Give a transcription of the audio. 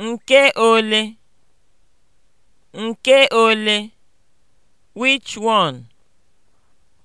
Nke ole? Nke ole? Which one?